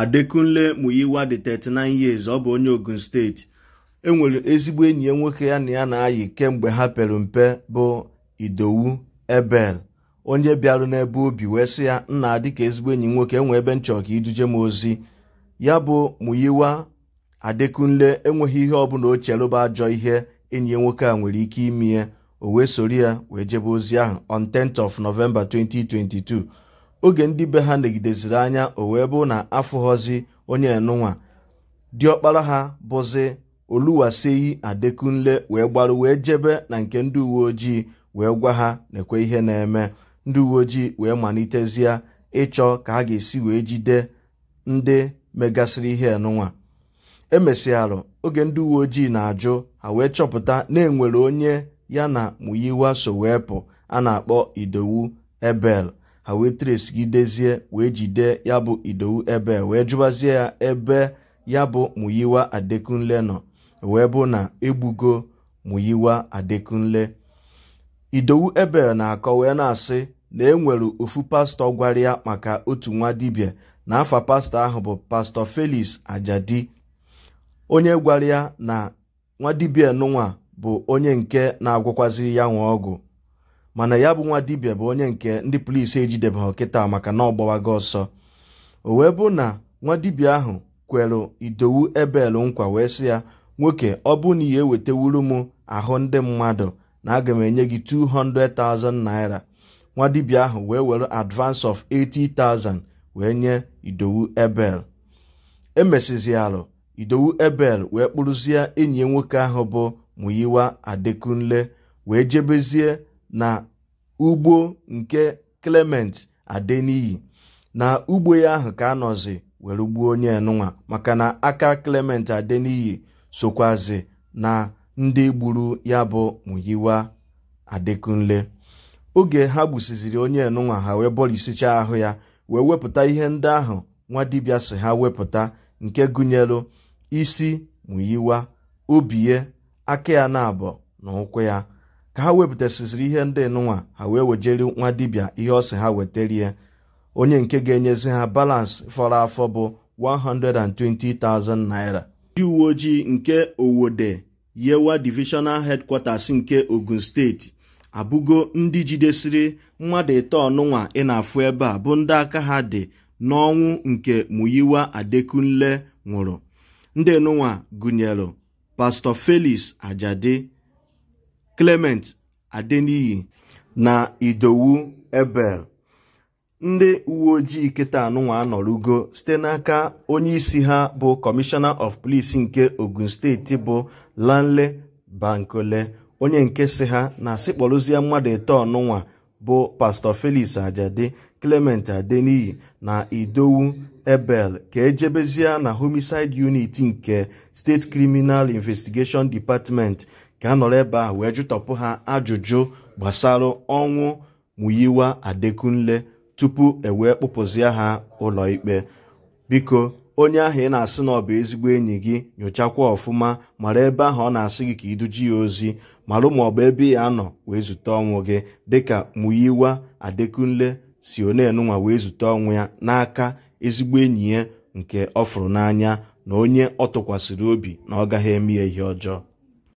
adekunle muyiwa 39 years ọ bụ onye ogun steeti enwere ezigbo enyi ya nwoke ya na ya na-ayị kemgbe ha pere mpe bụ idowu ebel onye bịarụ n'ebe obi wee sị ya nna dị ka ezigbo enyi nwoke enwe ebe nchọ ka iduje m ozi ya bụ muyiwa adekunle enweghị ihe ọbụla o rụba ajọ ihe enyi ya nwoke a nwere ike ime ya o wee soro ya wee jebe ozi ahụ on 10th of November 2022 oge ndị be ha negideziri anya o wee bụ na afụghọzi onye enunwa diọkpara ha bụzi oluwaseyi adekunle wee gbaru wee jebe na nke ndị uwe ojii wee gwa ha na-ekwe ihe na-eme ndị uwe ojii wee malitezie ịchọ ka ha ga-esi wee jide ndị megasịrị ihe enunwa emesịarụ oge ndị uwe ojii na-ajụ ha wee chọpụta na enwere onye ya na muyiwa so wee pụ a na-akpọ idowu ebel ha wee dezie wee jide ya bụ idowu ebe wee jụbazie ya ebe ya bụ muyiwa adekunle nọ wee bụ na egbugo muyiwa adekunle idowu ebe na-akọ wee na-asị na enwere ofu pastọ gwara ya maka otu nwa dibia; na afa pastọ ahụ bụ pastọ felis Ajadi onye gwara ya na nwa dibia nụnwa bụ onye nke na-agwụkwaziri ya nwa ọgwụ mana ya bụ nwa dibia bụ onye nke ndị polisi ejidebe kịta maka na ọ gbawago ọsọ o wee bụ na nwa dibia ahụ kwere idowu ebel nkwa wee sị ya nwoke ọ bụ na ya m ahụ ndị mmadụ na aga m enye gị 200,000 naira nwa dibia ahụ wee were advance of 80,000 wee nye idowu ebel emesizialụ idowu ebel wee kpụrụzie enyi nwoke ahụ bụ muyiwa adekunle wee jebezie na ugbo nke Clement Adeniyi na ugbo ya ahụ ka anọzi were gbuo onye enunwa maka na aka Clement Adeniyi sokwazi na ndị gburu ya bụ Muyiwa Adekunle oge ha gbusiziri onye enunwa ha wee bọrisicha ahụ ya wee wepụta ihe ndị ahụ nwa dibịa si ha wepụta nke gụnyere isi Muyiwa obie aka ya na abụ na ụkwụ ya ka ha wepụtasịsịrị ihe ndị nụnwa ha wee wejeri nwa dibia ihe ọsị ha weterie onye nke ga-enyezi ha balansị fọrọ afọ bụ 120,000 naira ndị uwe ojii nke owode yewa divisional headquarters nke ogun steeti abụgo ndị jidesiri mmadụ ịtọ nụnwa ị na-afụ ebe a bụ ndị aka ha dị n'ọnwụ nke muyiwa adekunle nwụrụ ndị nụnwa gụnyere pastọ felis ajadi Clement Adeniyi na Idowu Ebel ndị uwe ojii kịta anụnwa anọrugo site n'aka onyeisi ha bụ Commissioner of Police nke Ogun steeti bụ Lanle Bankole onye nke si ha na asịkpọrụzie mmadụ ịtọ ọnụnwa bụ Pastor Felix Ajadi Clement Adeniyi na Idowu Ebel ka ejebezie na Homicide Unit nke State Criminal Investigation Department ga-anọrọ ebe ahụ wee jụtọpụ ha ajụjụ gbasara ọnwụ Muyiwa Adekunle tupu e wee kpụpụzie ha ụlọikpe biko onye ahụ ị na-asị na ọ bụ ezigbo enyi gị nyochakwa ọfụma mara ebe ahụ ọ na-asị gị ka iduji ya ozi marụ ma ọ bụ ebe ya nọ wee zute ọnwụ gị dịka Muyiwa Adekunle si onenunwa wee zute ọnwụ ya n'aka ezigbo enyi ya nke ọ fụrụ n'anya na onye ọ tụkwasịrị obi na ọ gaghị eme ya ihe ọjọọ